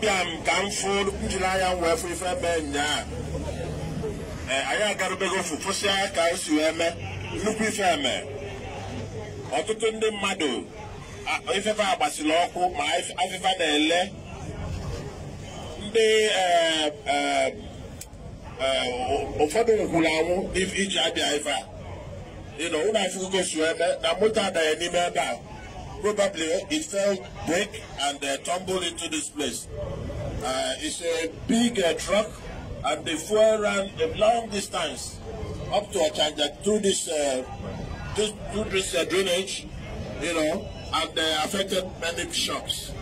abịa m ka m fụ njiri anya wee fụ ife mee nyaa anyị agarubego ofu fụsịa ka anyị si wee nnukwu ife eme ọtụtụ ndị mmadụ ifefe na ọkụ ma afịfa eh, na-ele ndị ụfọdụ ngwụrụ anwụ iji abịa ife a ịnọ ụlọ afụgogo si eme mee na moto adaghị n'ime ebe a probably it fell, break, and uh, tumbled into this place. Uh, it's a big uh, truck, and the fuel ran a long distance up to Ochanja through this, uh, this, through this uh, drainage, you know, and uh, affected many shops.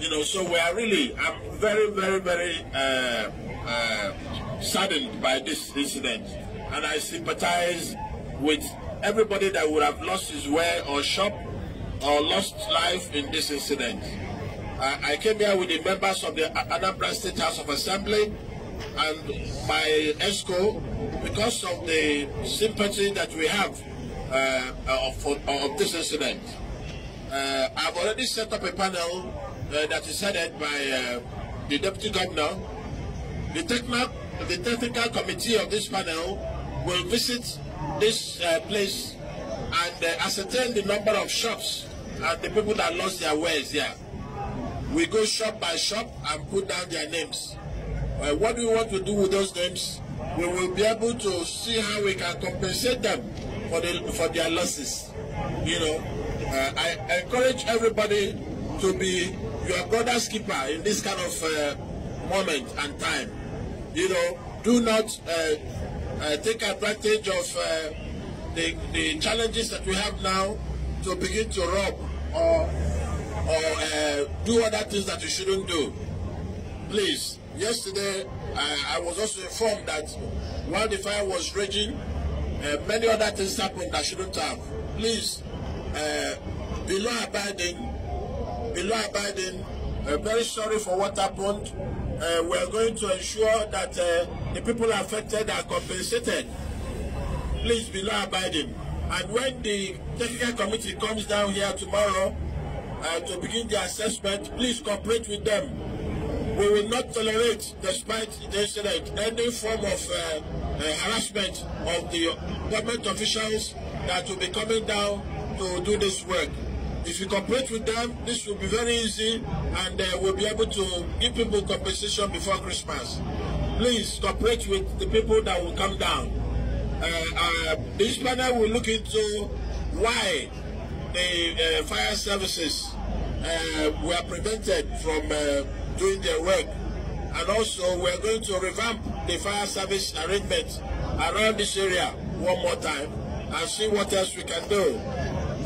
You know, so we are really, I'm very, very, very uh, saddened by this incident, and I sympathize with everybody that would have lost his way or shop or lost life in this incident. Uh, I came here with the members of the Anambra State House of Assembly and by ESCO because of the sympathy that we have uh, of, of this incident. Uh, I've already set up a panel uh, that is headed by uh, the Deputy Governor. The, technical, the technical committee of this panel will visit this uh, place and uh, ascertain the number of shops and the people that lost their wares here. We go shop by shop and put down their names. Uh, what do we want to do with those names? We will be able to see how we can compensate them for, the, for their losses. You know, uh, I encourage everybody to be your brother's keeper in this kind of uh, moment and time. You know, do not uh, uh, take advantage of uh, the, the challenges that we have now to begin to rob or, or uh, do other things that we shouldn't do. Please, yesterday I, I was also informed that while the fire was raging, uh, many other things happened that shouldn't have. Please, uh, be law abiding, be law abiding. Uh, very sorry for what happened. Uh, we are going to ensure that uh, the people affected are compensated please be law abiding. And when the technical committee comes down here tomorrow uh, to begin the assessment, please cooperate with them. We will not tolerate, despite the incident, any form of uh, uh, harassment of the government officials that will be coming down to do this work. If you cooperate with them, this will be very easy and uh, we'll be able to give people compensation before Christmas. Please cooperate with the people that will come down uh, this uh, panel will look into why the uh, fire services uh, were prevented from doing their work. And also, we are going to revamp the fire service arrangement around this area one more time and see what else we can do.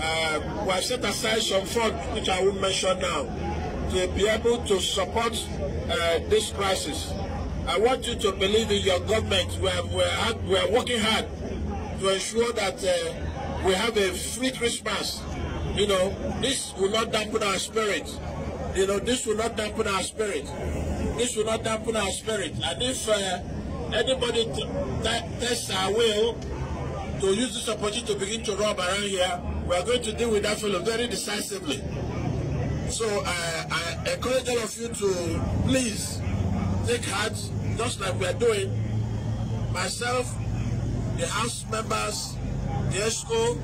Uh, we have set aside some funds, which I will mention now, to be able to support uh, this crisis. I want you to believe in your government. We are, we are, we are working hard to ensure that uh, we have a free Christmas. You know, this will not dampen our spirit. You know, this will not dampen our spirit. This will not dampen our spirit. And if uh, anybody t- t- tests our will to use this opportunity to begin to rob around here, we are going to deal with that fellow very decisively. So uh, I encourage all of you to please take heart, just like we are doing. Myself, the House members, the ESCO,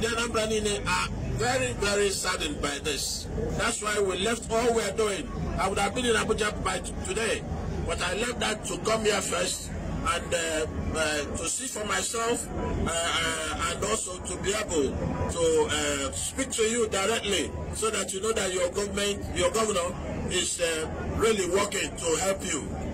the Anambra Nine are very, very saddened by this. That's why we left all we are doing. I would have been in Abuja by today, but I left that to come here first and uh, uh, to see for myself uh, uh, and also to be able to uh, speak to you directly so that you know that your government, your governor is uh, really working to help you.